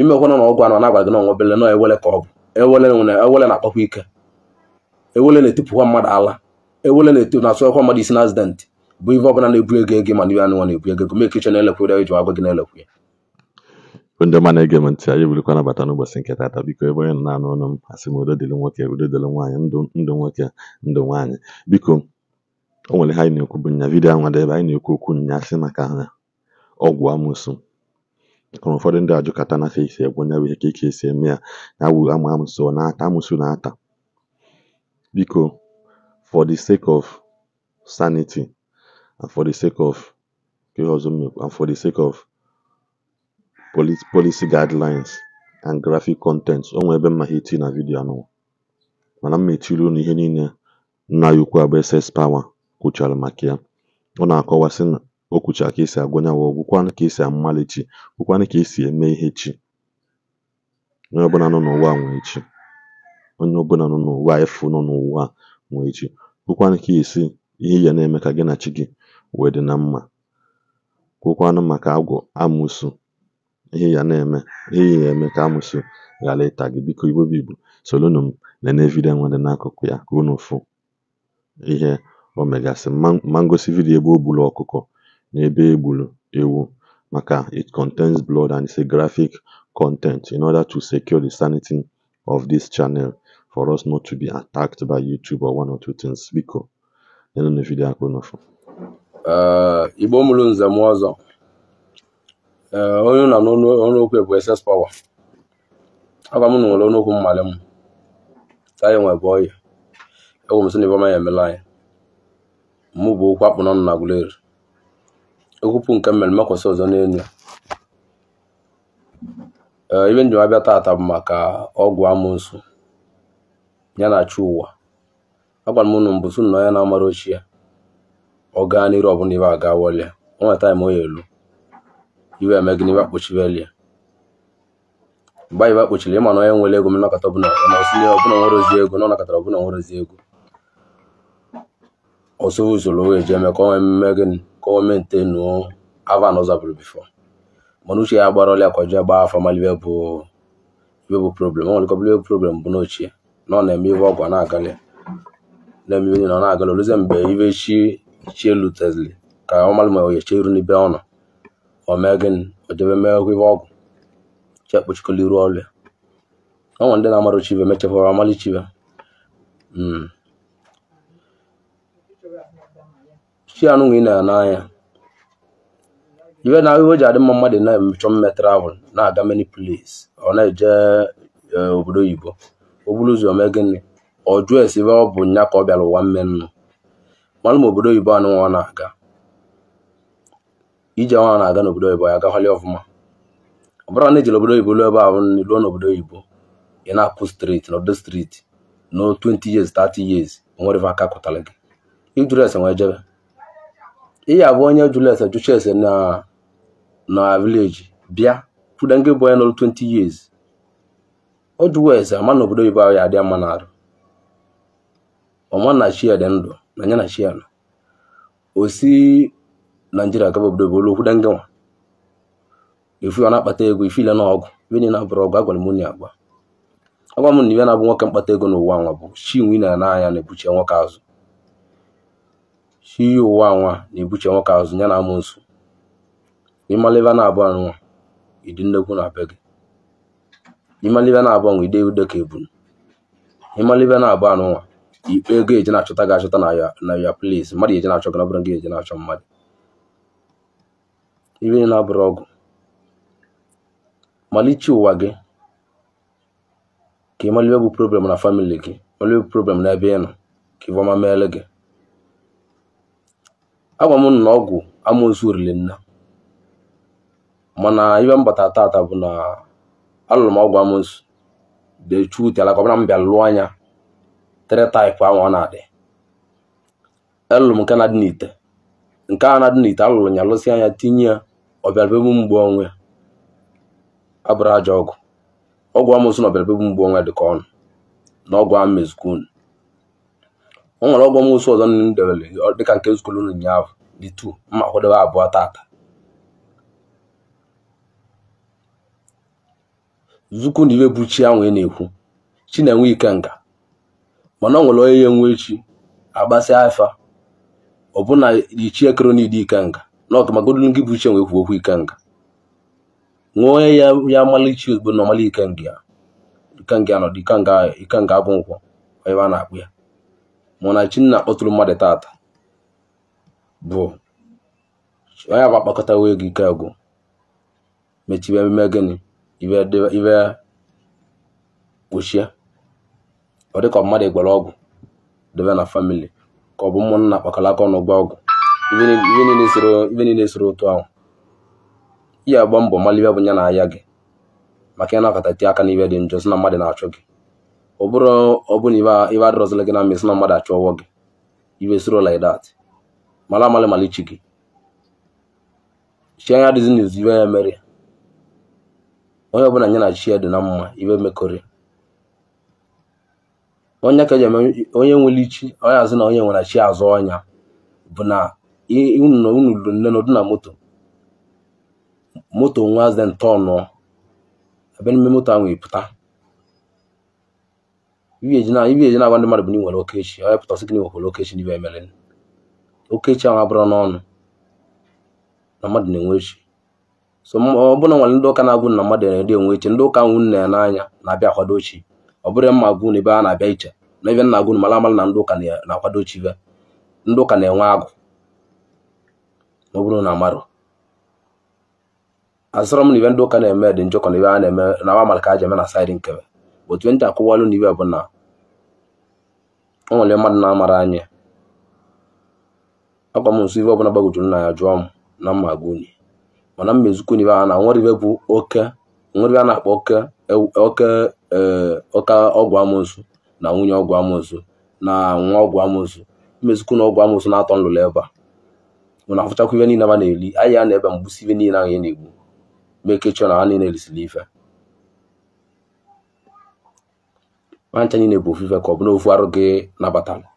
imekwana na ọgwụ anọ na-agwa gị n'ọnwa ọnwebele nọ ewele ka ọgwụ bụ ewele na-akpakwa ike ewele na-etipụkwa mmadụ ala ewele na-etu na mmadụ isi na azidentị bụ ife ọbụla na-ebu ego ego ma na-ebu ego ego mee kichọn elekwa ire eji agwa gị na-elekwa ya ndị ọma na-ege m ntị anyị ebirikwa nabata n'ụbọchị nke tata biko ebe onye na-anụ ọnụ m asị m udo nwoke udo dịrị nwaanyị ndụ nwoke biko o nwere anyị na-ekwu bụ nya anwa ebe anyị na-ekwu okwu nya sị maka ọgwụ amụsụ hụrụ ụfọdụ ndị ajụkata na fe isi egwu onye bụ ihe ka ike esi eme ya na awụ amụ amụsụ na-ata amụsụ na-ata biko for the sake of sanity and for the sake of ihe ọzọ and for the sake of policy, policy guidelines and graphic content o ebe mma ha eti na vidiyo anụwa mana m mechiri unu ihe niile nna ya ukwu bụ SS Power kwuchara maka ya ọ na-akọwa sị na o kwuchara ka esi agụnyanwụ gwụkwanụ ka esi amali chi gwụkwanụ ka esi eme ihe chi onye ọbụla nọ n'ụwa nwee chi onye ọbụla nọ n'ụwa efu nọ n'ụwa nwee chi gwụkwanụ ka esi ihe ya na-eme ka gị na chi gị wee dị na mma kwụkwanụ maka agwọ amụsụ ihe ya na-eme ihe ya eme ka amụsụ ghara ịta gị biko igbo bụ igbo na m nene nwa dị n'akụkụ ya ka unu fụ ihe o megasị ma ngosi vidiyo ebe o gburu ọkụkọ n'ebe e gburu ewu maka it contains blood and it's a graphic content in order to secure the sanity of this channel for us not to be attacked by YouTube or one or two things biko nenụ vidiyo akpụ n'ụfụ eh, igbo mụrụ nze m ọzọ eh, onye na n'ọnụokwu bụ ss power agwa m na nwere ọnụokwu mmalị m ka anyị nwebe ọya egwu m sị na ibe ọma ya emela anyị mụ bụ okwu akpụ n'ọnụ na Aguleri okwupụ nke mmere makwasị ọzọ n'elu ebe eh, njem abịa taata bụ maka ọgwụ amụsụ ya na chi ụwa agwara m ụnụ mbụ sụnụ na onye na-amara ochie ya ọ gaa n'iru ọbụla ibe aga wọlịa o nwere taịm onye elu iwe eme gị n'ibe akpochibelie mgbe anyị akpochiri ịma na onye nwere ego mnakọta ọbụla ọsịnye ọbụla nwere ozi ego na ọnakọtara ọbụla nwere ozi ego ọsọ usoro wee ji eme ka o nwee mmemme gịnị gọọmenti enuo ava na ọzabụrụ bifo mana uche ya gbara ọlịa akwaji agba afa malibe bụ ibe bụ problem ọ nwerekọbụla ibe problem bụ n'ochie na ọ na-eme ibe ọgwa na-agalị na-eme ibe na ọ na-agalị olụzie mgbe ibe chi chie lutezli ka ọ malụ ma oyeche iru n'ibe ọ nọ o mee gịnị o jebe mee ọgwụ ibe ọgwụ chi ekpochikola iru ọlịa ọ nwere ndị na-amarụ chibe mechekwa amalichibe si anụ nwe ị na ya n'anya iwe na ahụhụ ji adị mma mmadụ na-emechọ mme travel na-aga many place ọ na-eje e, obodo oyibo o ụzọ mee gịnị ọ jụọ esi ebe ọ bụ nya ka ọ bịara ụwa mme nnụ malụ ma obodo oyibo anụ nwa na-aga ije nwa na-aga n'obodo oyibo ya agahali ọfụma ọ bụrụ na ejere obodo oyibo ruo ebe ahụ ruo n'obodo oyibo ị na-apụ streeti n'obodo streeti no 20 years 30 years nwere aka kụtara gị ijụrụ ese nwee jebe ị abụ onye jụrụ ese jụcha na na vileji bịa fụda nke bụ onye nọrụ 20 years o jụwa ese ama na obodo oyibo ahụ ya adịa mma n'arụ ọma na chi dị ndụ na nya na chi ya o si naijiria gaba obodo obodo okwuda nke nwa efu ọ na-akpata ego ifile na ọgwụ ibe na abụrụ ọgụ, agwara mụ na agba. agwa m na ibe na-abụ nwoke mkpata ego n'ụwa nwa bụ chi nwe na n'anya na-ebuchie nwoke azụ shi iyi ụwa nwa na-ebuche nwoke azụ ya na amoosu ịmalibe na-abụ nwa ịdị nnekwu na abịa gị ịmalibe na-abụ anwa ide ude ka ebunu ịmalibe na-abụ nwa ikpe ego eji na-achọta gị achọta na ya plis mmadụ ga-eji na-achọ gị na bụrụ gị eji na-achọ mmadụ ibe na-abụrụ ọgụ malichi ụwa gị ka ịmalibe bụ problem na famili gị malibe bụ problem na ebe ị nọ ka ịbọma meele gị agwa m na ọgwụ amoosu riri mana ibe m tata bụ na alụrụ m ọgwụ amoosu dechuteala ka ọbụna m bịa lụọ anya tere taịpụ ahụ ọ na-adị alụrụ m nke na-adị n'ite nke a na-adị n'ite alụrụ ya lụsị anya tinye ya ọbịarabebụ mgbu onwe abụrụ aja ọgwụ ọgwụ amoosu na ọbịarabebụ mgbu onwe dị ka ọnụ na ọgwụ ahụ mezukwu unu o nwere ọgwọ m ọzọ nne m debere dịka nke nzukọ ụlọ ụnyaahụ dị tu mma kwadebe abụọ tata zukwu na ibe bụ chi ahụ ị e na-ekwu chi na-enwe ike nga mana ọ nwere onye ya enwe chi agbasị afa ọbụna ichi ekere n'ide ike nga na ọgụmagodu gị bụ chi enwe ekwu okwu ike nga nwee onye ya ya malichi ozugbo na ọmali ikenga ya ikenga nọdụ ikenga abụ nkwọ ebe a na-akpụ ya Munachi nna kpọtụrụ mmadụ tata bụ onye bụ akpakọtawo ego ike agwụ mechibe ememe gịnị ibe kpochie ọ dịka mmadụ gwara ọgwụ debe na famili ka ọ bụ ụmụnna kpakọrọ aka ọnụ gba ọgwụ ibe niile soro otu ahụ ihe agba mbọ malibe bụ ya na ahịa gị maka ị na-akọtati aka n'ibe dị njọ si na mmadụ na-achọ gị ọ bụrụ ọbụna ibe adọrọzila gị na mmesi na mmadụ achọwọ gị ibe soro like that mara amalị mara ichi gị chi anya dịzi n'izu ibe ya mere onye ọbụla nye na chi ya dị na mma ibe mekọrị onye ka e onye nwere ichi onye azụ na onye nwere chi azụ ọnya bụ na unu lụrụ nne n'ọdụ na moto moto nwa azị ntọnụ ebe n'ime moto ahụ pụta ibi na-agwa ndị mmadụ bụ na ị nwere okechi onye pụta sị gị na nwekwara okechi n'ibe emere okechi ahụ abụrụ n'ọnụ na mmadụ na-enwe echi so ọ na nwere ndị ụka na-agwụ na mmadụ na-ede enwe eche ndị ụka nwụ nna ya n'anya na-abịa akwado chi ọ bụrụ mma agwụ na ebe a na-abịa iche na ebe nna agwụ mara amara na ndị ụka na-akwado chi be ndị ụka na-enwe agụ ma ọ bụrụ na amarụ asịrọ m na ibe ndị ụka na-eme dị njọkọ na ebe a na-eme na wa mara ka a ji eme na saịdị nkebe otu ntị akụwalụ na iwe bụ na o nwere mmadụ na-amara anya akwa m nso iwe ọbụla gbagwojuru na ya jụọ m na mma gwa unyi mana mmezukwu n'ibe a na nwere bụ oke nwere a na-akpọ oke e, oke e, ọgwụ amoosu na nwunye ọgwụ amoosu na nwa ọgwụ amoosu mmezukwu na ọgwụ amoosu na-atọ nlụlụ ebe a nwere afụchakwa ibe niile ma na-eli anyị ya na ebe mgbusi ibe niile ahụ ya na-egbu mekechọ na ha niile erisiri ife nwancha niile bụ ofufe ka ọ bụ n'ofu arụ gị nabatara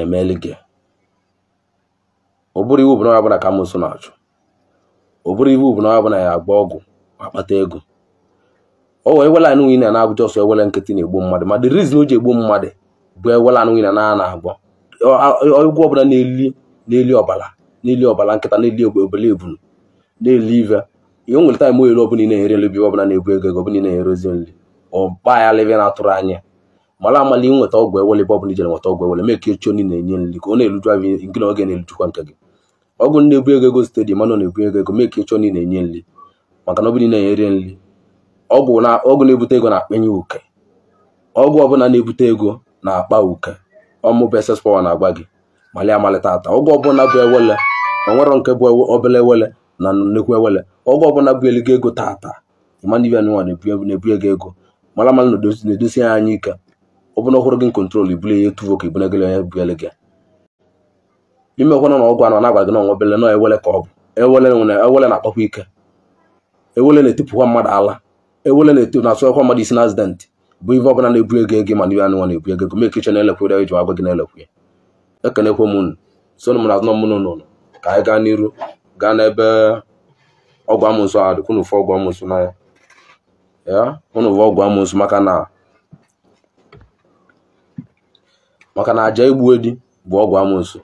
emeli gị ọ bụrụ iwu bụ na ka amụsụ na-achụ ọ bụrụ iwu bụ na ya agba ọgwụ ma kpata ego o wee ewela anụ nwunye na abụja ọsọ ewele nkịtị na-egbu mmadụ ma the reason o ji egbu mmadụ bụ ewela anụ nwunye na a na-agwọ ọgwụ ọbụla na-eli ọbala eli ọbara na-eli ọbara nkịta na-eli obele ebunu na-eli ive ihe nwere taịm oyere ọbụla ị na-enyere nri ọbụla na-ebu ego ego ọbụla ị na-enyerozi nri ọba ya lebe na-atụrụ anya mara amala nweta ọgwụ ewele ebe ọbụla ijere nweta ọgwụ ewele mee ka echi onye na-enye nri ka ọ na-eruju ahụ nke na oge na elujukwa nke gị ọgwụ na-ebu ego ego site dị mana na-ebu ego ego mee ka echi onye na-enye nri maka na ọbụla na-enyere nri ọgwụ na-ebute ego na-akpenye uke ọgwụ ọbụla na-ebute ego na-akpa uke ọmụbụ ss pawa na-agba gị mali amalite ata ọgwụ ọbụla bụ ewele onwero nke bụ obele ewele na nnukwu ewele ọgwụ ọbụla bụ eligo ego tata ịma na ibe na-ebu ego ego mara mma na edozi ya anya ike ọ bụrụ na ọhụrụ gị nkontrol ibuli ya etuvo ka ibunagịl onye bugele gị imekwana na ọgwụ anọ na-agwa gị na ọnwa bele na ewele ka ọ bụ ewele na-akpakwa ike ewele na-etipụkwa mmadụ ala ewele na-asụkwa mmadụ isi na azidentị bụ ife ọbụla na-ebu ego ego mana nwa na-ebu ego gome kichen elekwere iji agwa gị na-elekwu ya ekenekwe m unu sonu m na azụ mụnụ n'ụlọ ka anyị gaa n'iru gaa n'ebe ọgwụ amụnsọ a dịkwunu ụfọ ọgwụ amụnsọ n'anya ya unu bụ ọgwụ amụsụ maka na maka na aja egbu edi bụ ọgwụ amụsụ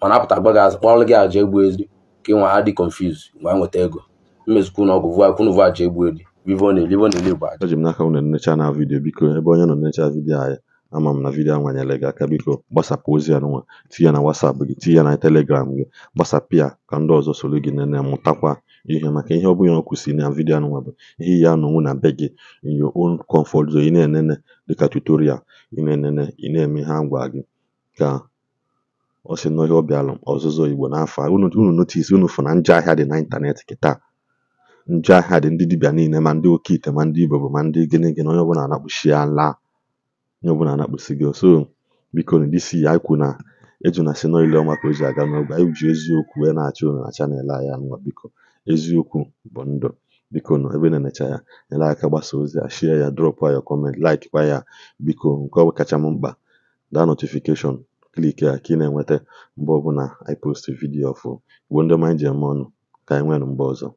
mana apụta agba gị azụ kpọrọ gị aja egbu edi ka ịnwa ha dị confuse mgbe nweta ego mmezikwu na ọgwụ kwunu bụ aja egbu edi livoni livoni igbo aja eji m n'aka unu nnecha na vidiyo biko ebe onye nọ nnecha vidiyo anyị ama m na vidiyo anwanyela gị aka biko gbasapụ ozi ya n'ụwa tinye na wasapụ gị tinye na telegram gị gbasapụ ya ka ndị ọzọ soro gị nene mụtakwa ihe maka ihe ọbụla ọ kwụsị na vidiyo nwa bụ ihe ya anọnwụ na be gị in your own comfort ị na-enene dịka tutorial ị na-enene ị na-eme ha ngwa gị ka ọ si na ihe ọzụzụ igbo n'afọ a unu notice unu fụ na njọ ahịa dị na ịntanetị kịta njọ ahịa dị ndị dibịa niile ma ndị oke ite ma ndị igbo bụ ma ndị gịnị gịnị onye ọbụla anakpụchi ala onye ọbụla anakpụsi gị so biko na disi ya ikwu na eju na si n'ile ọma ka o ji aga anyị ji eziokwu wee na-achọ unu na chanel anyị anụnwa biko eziokwu bụ ndụ biko nọ ebe na-enecha ya nyere aka gbasa ozi a shie ya drọpụ ya kọment kwa ya biko nke ọbụ kacha m mkpa daa notifikeshọn kliki a ka ị na-enweta mgbe ọbụla i post vidiyo ọfụ Igbo ndị ọma ji eme ọnụ ka anyị nwee mgbe ọzọ